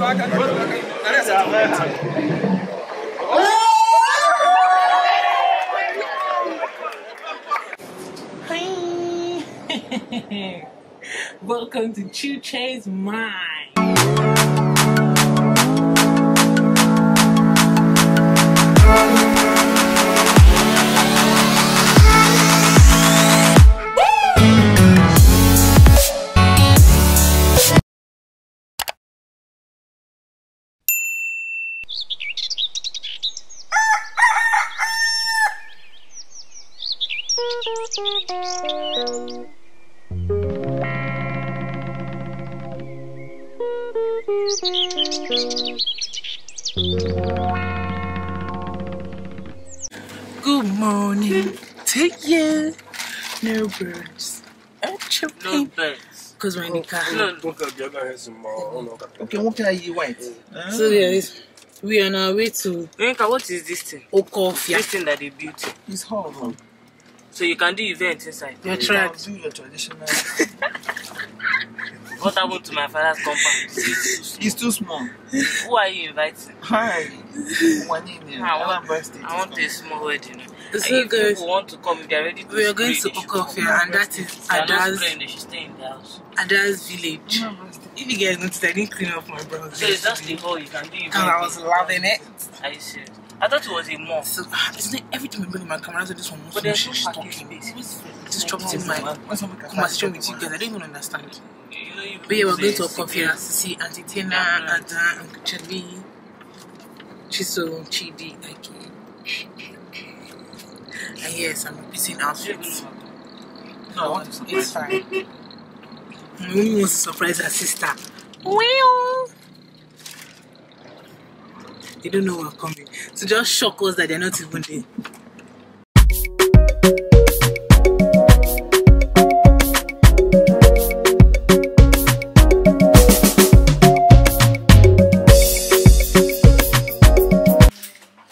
Welcome to Chu Che's Mind. No birds. No Because we're in the car. Okay, what can I eat white? Ah. So there is. We are on our way to. Yinka, what is this thing? Okofia. This thing that they built. It's hall. Huh? So you can do events inside. You're tried. Do your traditional. what happened to my father's compound? It's too small. Who are you inviting? Hi. One in there. I want, I want a small wedding and so if people want to come, they're ready to We are going to Okofia, and that is Ada's. they should stay in the house. Ada's village. if you guys noticed, I didn't clean up my brother's. So it's just the hole you can do. And I was loving it. I see. I thought it was a mall. So, ah, isn't it every time I bring my camera said this one, but there's no parking space. Disrupting my conversation with you guys. I don't even understand. But yeah, we're going to Okofe to see Auntie Tina, Ada, Uncle Charlie, Chiso, Chidi, Aki. And yes, I'm missing outfits. No, it's fine. Mommy wants to surprise her sister. Well. They don't know we're coming. So just shock us that they're not even there.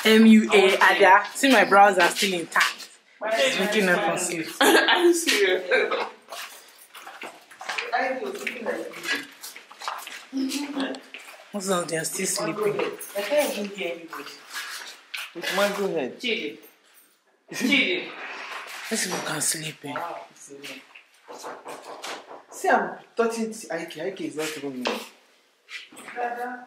MUA Ada. See my brows are still intact. We cannot conceive. I see você, I do. Most of them que still sleeping. I can't hear anybody. It's my go ahead. Chidi. Chidi. These people can sleep. Eh? Wow. See, I'm touching Aike. Aike is not even me. Dada.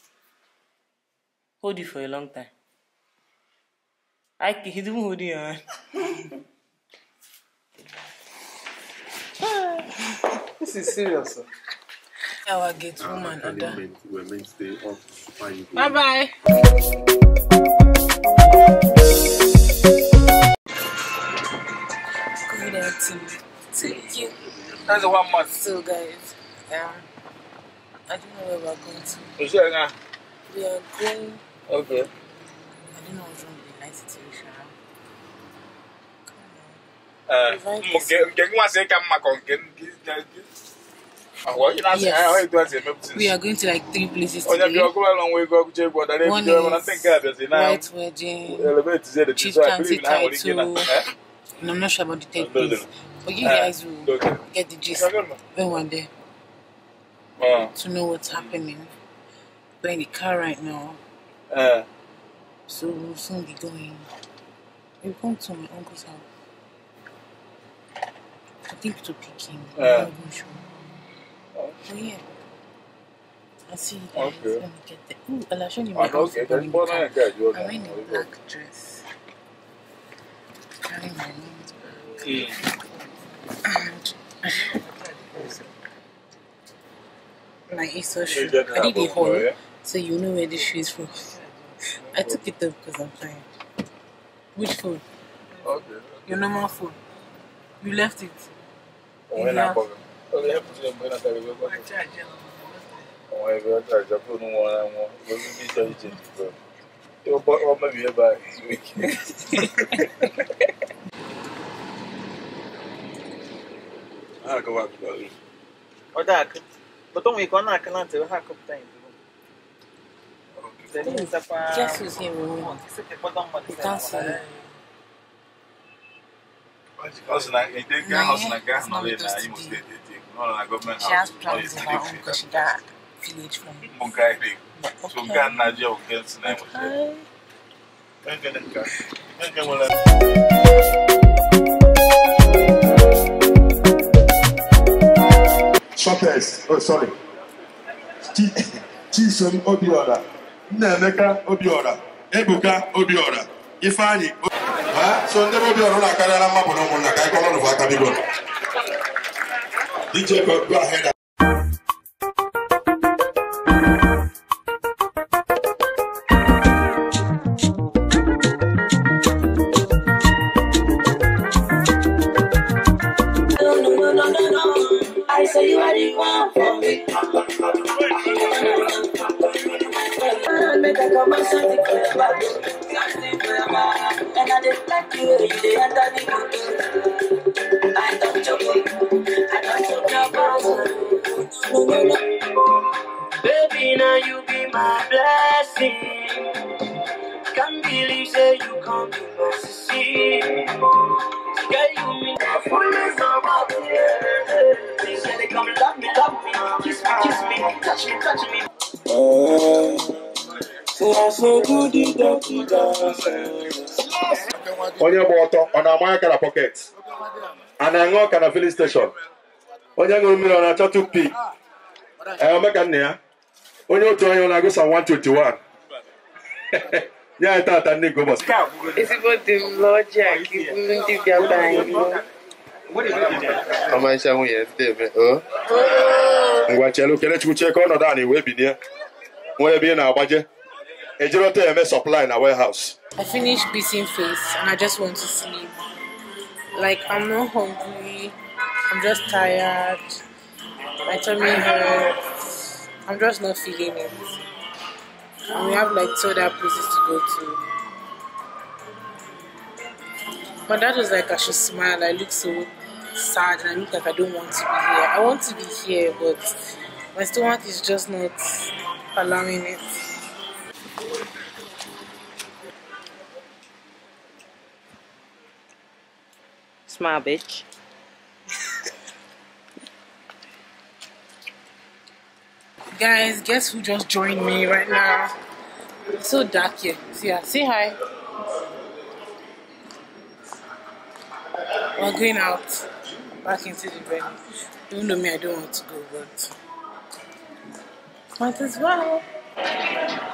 hold you for a long time. I he's even holding your hand. this is serious. Sir. Our gate ah, woman, uh, we're meant to stay up. Bye bye. Good afternoon. Thank you. That's one month. So, guys, um, I don't know where we're going to. Uh, we are going. Okay. I don't know what's wrong with the night situation. Yes. We are going to like three places oh, today. One is White Wedding, Chief County title, eh? and I'm not sure about the third place. But you guys ah, will get the gist when we're there. Ah. To know what's happening. We're in the car right now. Uh, so we'll soon be going. We're going to my uncle's house. I think to pick him. Uh, I'm not sure. yeah. I'll see you guys okay. when we get there. Ooh, I'll show you my house. Okay, that's what I got. I'm wearing a black dress. Carrying my name's mm. bag. Yeah. And. it's shoe. I did a haul, eh? so you know where this shoe is from. I took it though because I'm tired. Which phone? Okay. Your normal phone. You left it. Oh When I come. Okay, help me when I carry oh, it. My charger. Wọ́n ẹgbẹ́ ọjà ìjọpọ̀ ní wọn ara wọn lórí bí ìjọ ìjẹ ìdìbò. Tí ó bọ́ ọmọ mi yẹn bá ìwé kí. Ọjà kan, bọ́tọ̀ mi kan náà kan láti wá kọ́pútà yìí. Just use him. Shoppers, oh sorry. Chisom Obiola. Nnaemeka Obiora Ebuka Obiora Ifeanyi so ndị Obiora na-akarịala mmapụ na ụmụnna ka anyị kọrọ n'ụwa DJ go ahead I say you are the one for me. Your am so deep forever, so deep forever. And I just like you, you are the into onye gba ọtọ ọ na-ama aka na pọket a na-aṅụ ọka na filin steshọn onye ṅụrụ mmiri ọ na-achọ tupi ka nna ya onye otu onye ọ na-agụsa 121 ya tata ndị gobos ezigbo dị m n'ọjị a ka ndị bịa anyị ọmarịcha nwunye ndị eme o ngwa chelu kelechukwu chee ka ọnọdụ anyị wee binie ebe ị na-agbaje Ejiro TMS supply in our warehouse. I finished beating face and I just want to sleep. Like, I'm not hungry. I'm just tired. My tummy hurts. I'm just not feeling it. And we have like two other places to go to. But that was like I should smile. I look so sad and I look like I don't want to be here. I want to be here, but my stomach is just not allowing it. Smile, bitch. Guys, guess who just joined me right now? It's so dark here. See ya. Say hi. We're going out back into the venue. Even though me, I don't want to go, but might as well.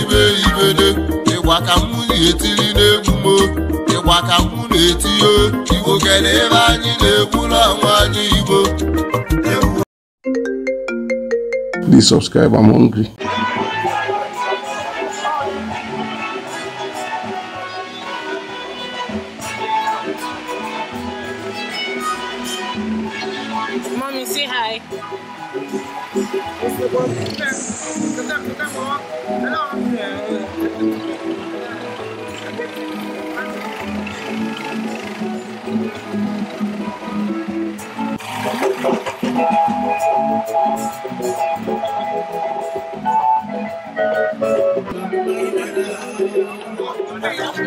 ibe ibede ka na-etiri na-etinye igbo kere anyị na anyị igbo Please subscribe,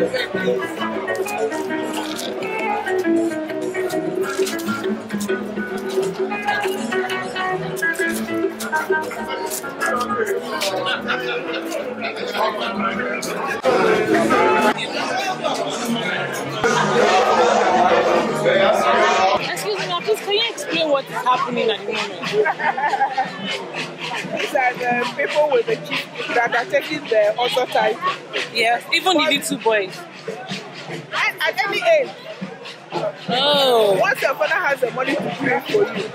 Excuse me, please can you explain what is happening at the moment? These are the people with the chief that are taking the author title. Yes, even but the little boys. At, at any age. Oh. Once your father has the money to pay for you,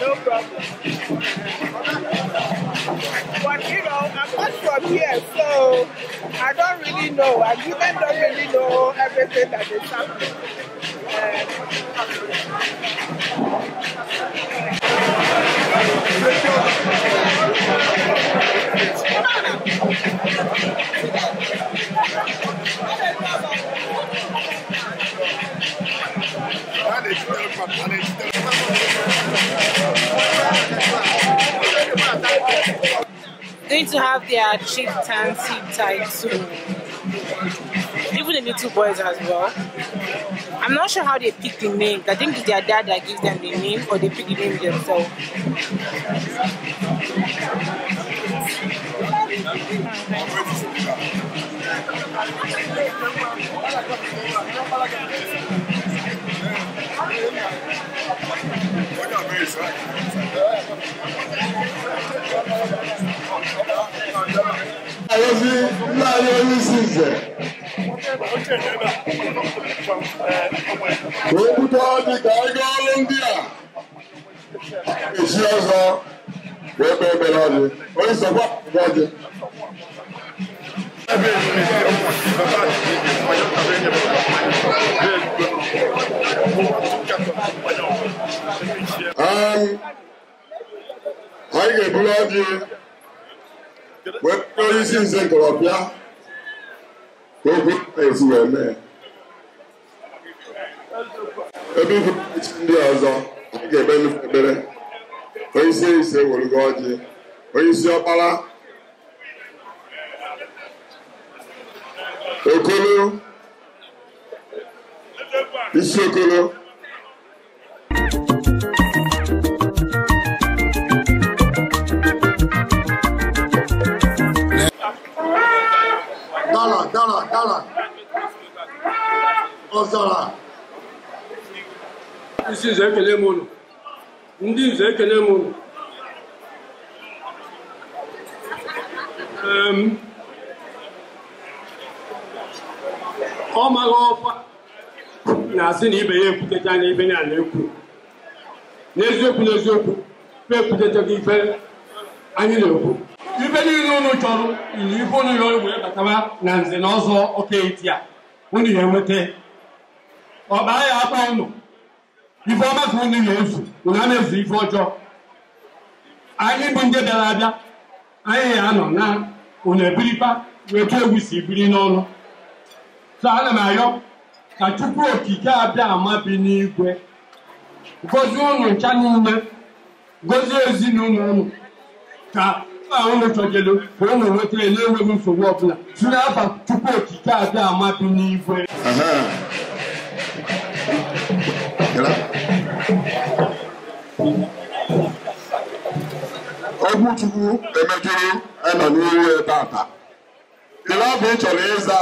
no problem. But you know, I'm not from here, so I don't really know. I even don't really know everything that is happening. Um, Going to have their chieftaincy soon. Even the little boys as well. I'm not sure how they pick the name. I think it's their dad that gives them the name, or they pick the name themselves. Ayọ̀bí ńlá Ayọ̀bí sì jẹ́. Òkúta di kàágá Olóńdíà. Èsì ọ̀sán wọ́n bẹ̀rẹ̀ bẹ̀rẹ̀ ọ̀dẹ. Oríṣiríṣi ọ̀pá ga ebuli ọjị wee onye isi nze ntorọpịa ka okwu ezi wee mee ebe ikwu ndị ọzọ anyị ga-ebe nnukwu ekpere onye isi ise werugo ọjị onye isi ọkpara okolo isi okolo Dala, Dala, Dala. Ọzara. Isi nze ekele m unu. Ndị nze ekele m unu. Ọ maghị ọkwa na-asị na ibe ya ekwutecha na ibe ya na-ekwu. N'eziokwu n'eziokwu, ekwutechaghị ife anyị na-ekwu. niile unu chọrọ iri ihe unu ya wee batawa na nze na ọzọ okeiti a unu ya enweta ọkpaa ya akpa unu ife ọma ka unu ya ezu unu ana ezu ife ọjọọ anyị bụ ndị bịara abịa anyị ya anọ na unu ebirikpa wee tụ egwu si biri n'ọnụ so ana m arịọ ka chukwu okike abịa ama bi n'igwe gozie ụnụ ncha niile gozie ezinụlọ ụnụ ka ahụ mechọjelu ka ọ na-enwetara na-enweghị nsogbu ọbụla si n'aba tupu okike abịa amabi n'igwe ogwu chukwu emejuru anọ n'ihu tata ile ọ bụ ị chọrọ ịza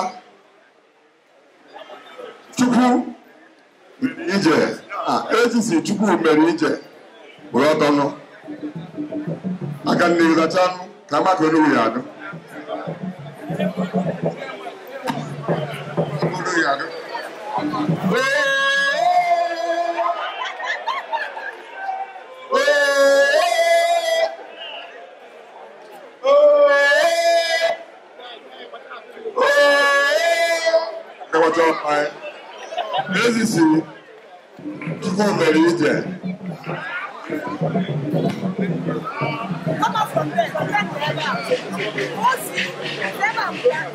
chukwu mere ije a chukwu mere ije bụrụ ọtọnụ aka nnigiza kyanu namaka n'obuyadu obuyadu Ezisi, tukumbere ije. Come out from there, come never. Once you never plan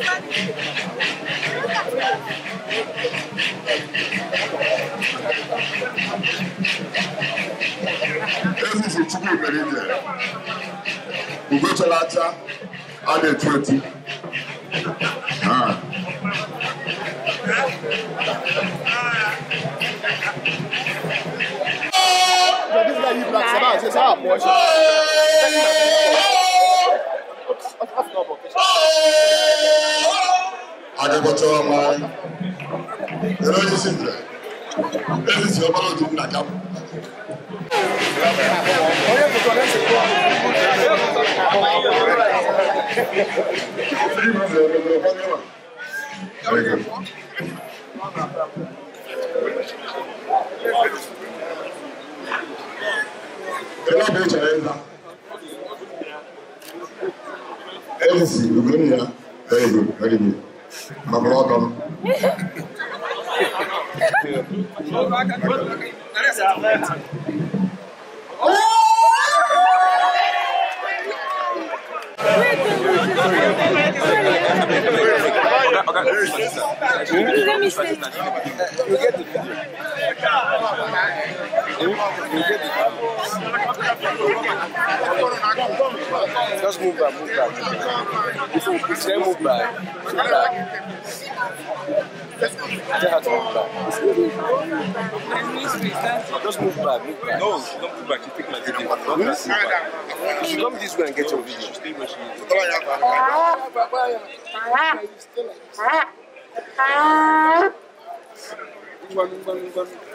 This is a chicken meridian. We go to Lata, add a 20. bá ṣe bá ṣe sáà mú ọṣẹ. Adébọ̀tọ̀ ọmọ ẹ̀rọ yìí sì bẹ̀rẹ̀ ẹ̀rọ sì ọmọ lọ́dún nàjà. Thank you. elabochaenda elisi ugonia very good very good ma Just move back, move back. If you prefer move back, move back. Tell move back. Just move back, move back. No, don't move back. She take my video. She come this way and get your video. She stay where she is. Stay like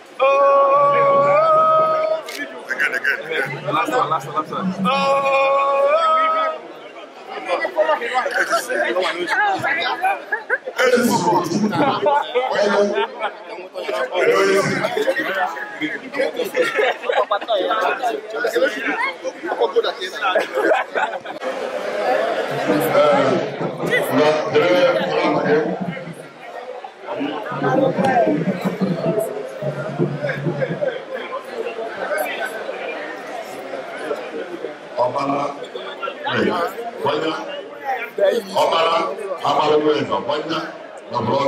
Oh. Again, again, again. Last one, last one, last one. Oh. Papa ka wanda na bura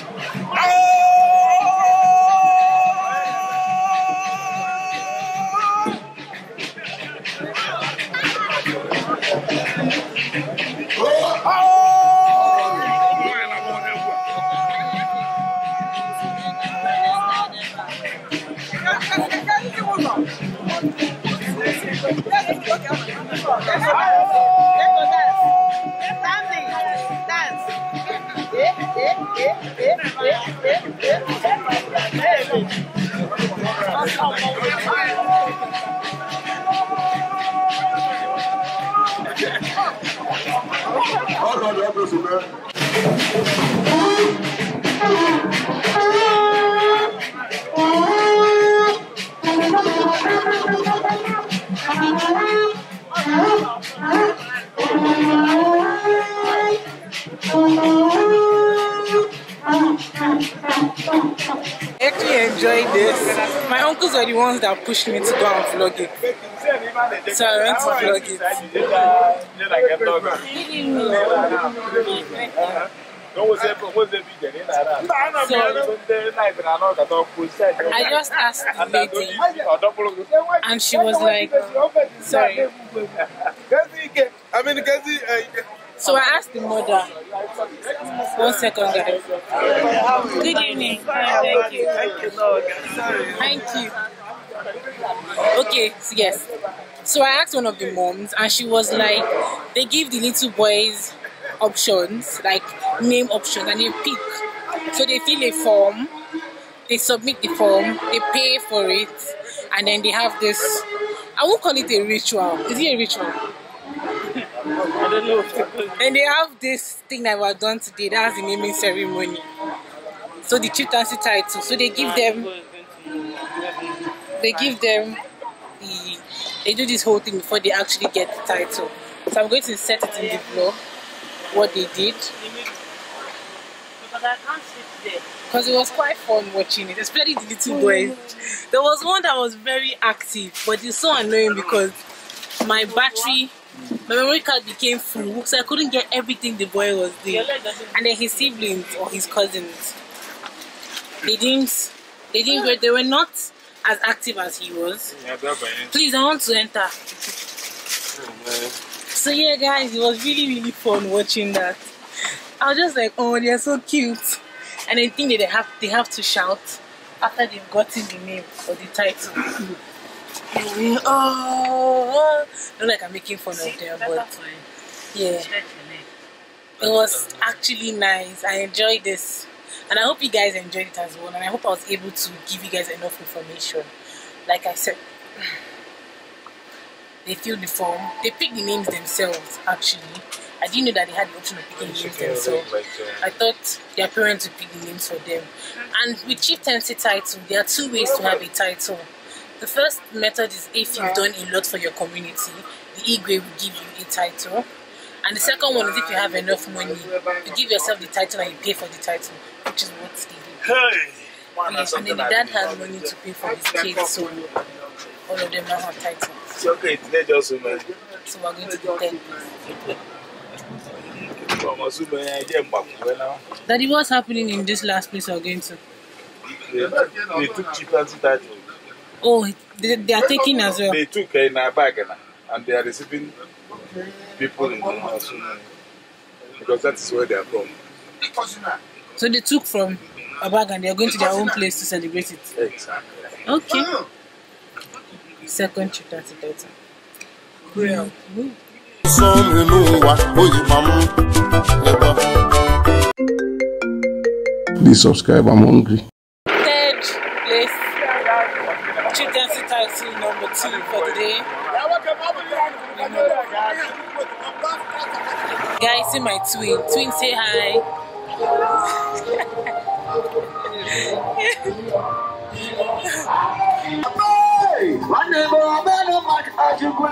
the ones that pushed me to go and vlog it. So I went to vlog it. So, I just asked the lady, and she was like, sorry. I mean, uh, so I asked the mother, one second, guys. Good evening. thank you. Thank you. Thank you. Okay, so yes. So I asked one of the moms, and she was like, they give the little boys options, like name option and you pick. So they fill a form, they submit the form, they pay for it, and then they have this. I won't call it a ritual. Is it a ritual? I don't know. and they have this thing that was done today. That's the naming ceremony. So the chieftaincy title. So they give them. They give them the. They do this whole thing before they actually get the title. So I'm going to set it in the blog what they did. Because it was quite fun watching it, especially the little boy. There was one that was very active, but it's so annoying because my battery, my memory card became full, so I couldn't get everything the boy was doing. And then his siblings or his cousins, they didn't, they didn't, they were not as active as he was. Please, I want to enter. Oh, so yeah, guys, it was really, really fun watching that. I was just like, oh, they're so cute. And I think that they have they have to shout after they've gotten the name or the title. oh, not like I'm making fun of them, but yeah, it was actually nice. I enjoyed this, and I hope you guys enjoyed it as well. And I hope I was able to give you guys enough information. Like I said, they fill the form, they pick the names themselves actually I didn't know that they had the option of picking the names so Like, uh, I thought their parents would pick the names for them. And with chieftaincy title, there are two ways to have a title. The first method is if you've done a lot for your community, the Igwe will give you a title. And the second one is if you have enough money, you give yourself the title and you pay for the title, which is what they do. Hey! Yes, and then the dad has money to pay for his kids, so all of them now have titles. Okay, today just So we're going to the 10 it what's happening in this last place again, sir? They, took cheap anti Oh, they, they are taking as well. They took in eh, a bag eh, and they are receiving people in the house because that is where they are from. So they took from a bag and they are going to their own place to celebrate it. Exactly. Okay. Second chapter. Well. Mm -hmm. sọ́ọ̀mù inú Please subscribe, I'm hungry. Third place, children's title number two for the day. Guys, see my twin. Twin, say hi. my name is Abel Mak Ajigwe.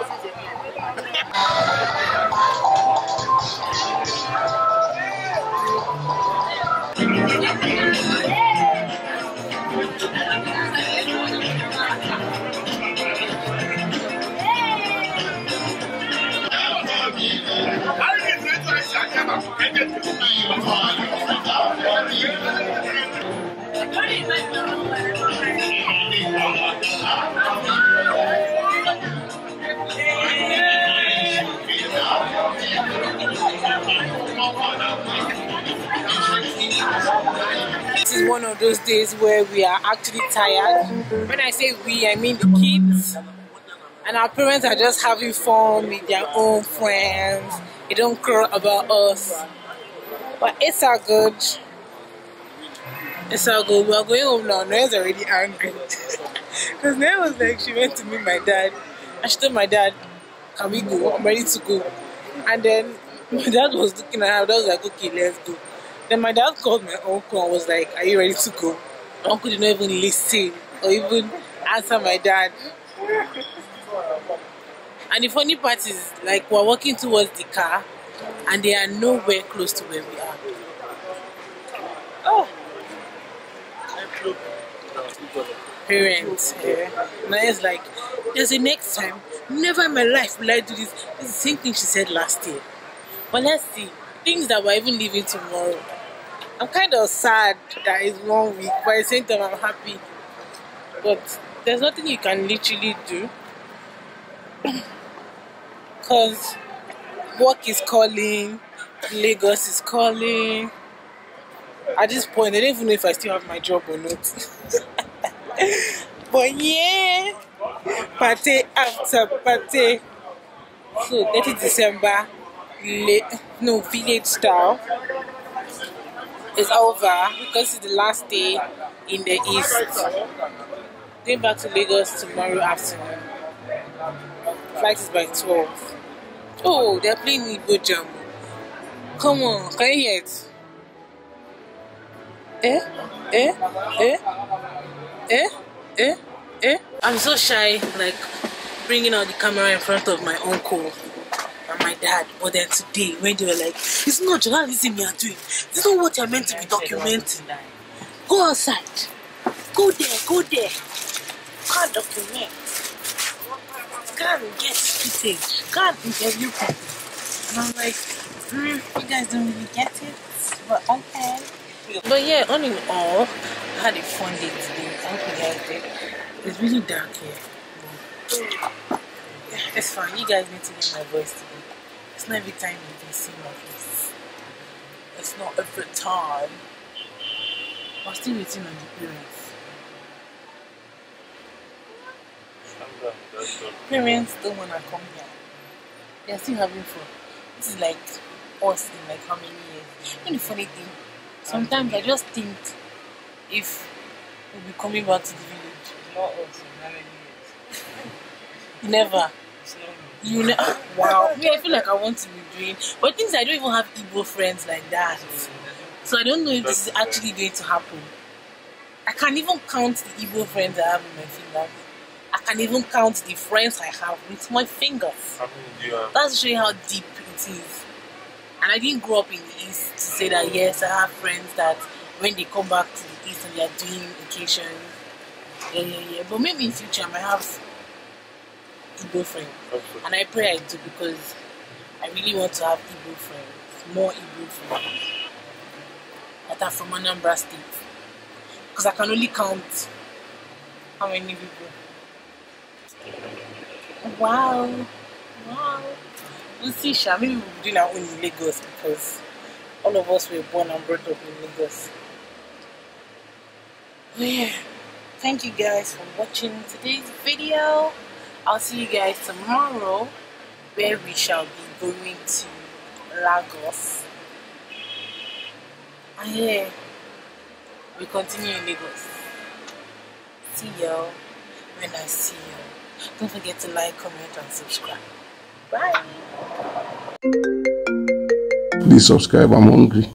one of those days where we are actually tired. When I say we, I mean the kids. And our parents are just having fun with their own friends. They don't care about us. But it's all good. It's all good. We're going home now. Noah's already angry. Because Noah was like, she went to meet my dad. And she told my dad, can we go? I'm ready to go. And then my dad was looking at her. I was like, okay, let's go. Then my dad called my uncle and was like, Are you ready to go? My uncle did not even listen or even answer my dad. And the funny part is, like, we're walking towards the car and they are nowhere close to where we are. Oh! Parents. Yeah. Now it's like, there's a next time. Never in my life will I do this. It's the same thing she said last year. But let's see. Things that we're even leaving tomorrow. I'm kind of sad that it's one week, but at the same time, I'm happy. But there's nothing you can literally do. Because work is calling, Lagos is calling. At this point, I don't even know if I still have my job or not. but yeah, party after party. So, 30 December, late, no, village style is over because it's the last day in the east. Going back to Lagos tomorrow afternoon. Flight is by 12. Oh, they're playing Igbo Jam. Come on, can you hear it? Eh? Eh? Eh? Eh? Eh? Eh? I'm so shy, like bringing out the camera in front of my uncle and my dad. But then today, when they were like, it's not journalism you're doing. This is what you're meant to be documenting. Go outside. Go there, go there. Can't document. Can't get footage. Can't interview people. And I'm like, mm, you guys don't really get it. But okay. But yeah, on in all, I had a fun day today. I hope you guys did. It's really dark here. It's fine. You guys need to hear my voice today. It's not every time you can see my face. It's not every time. I'm still waiting on the parents. parents don't wanna come here. They are still having fun. This is like us in like how many years. You know the funny thing? Sometimes I just think if we'll be coming back to the village. Not us in how many years. Never. It's not me. You know, wow. Me, I feel like I want to be doing, but things I don't even have Igbo friends like that. So I don't know if this is actually going to happen. I can't even count the Igbo friends I have in my fingers. I can even count the friends I have with my fingers. That's showing how deep it is. And I didn't grow up in the East to say that oh. yes, I have friends that when they come back to the East and they are doing vacations. Yeah, yeah, yeah. But maybe in future I might have Igbo friends. And I pray I do because I really want to have Igbo friends, more Igbo friends that are from Anambra State. Because I can only count how many people. Wow. Wow. We'll see, Sha. Maybe we'll be doing our own in Lagos because all of us were born and brought up in Lagos. yeah. Thank you guys for watching today's video. I'll see you guys tomorrow where we shall be going to Lagos. And yeah, we continue in Lagos. See y'all when I see y'all. Don't forget to like, comment, and subscribe. Bye. Please subscribe, I'm hungry.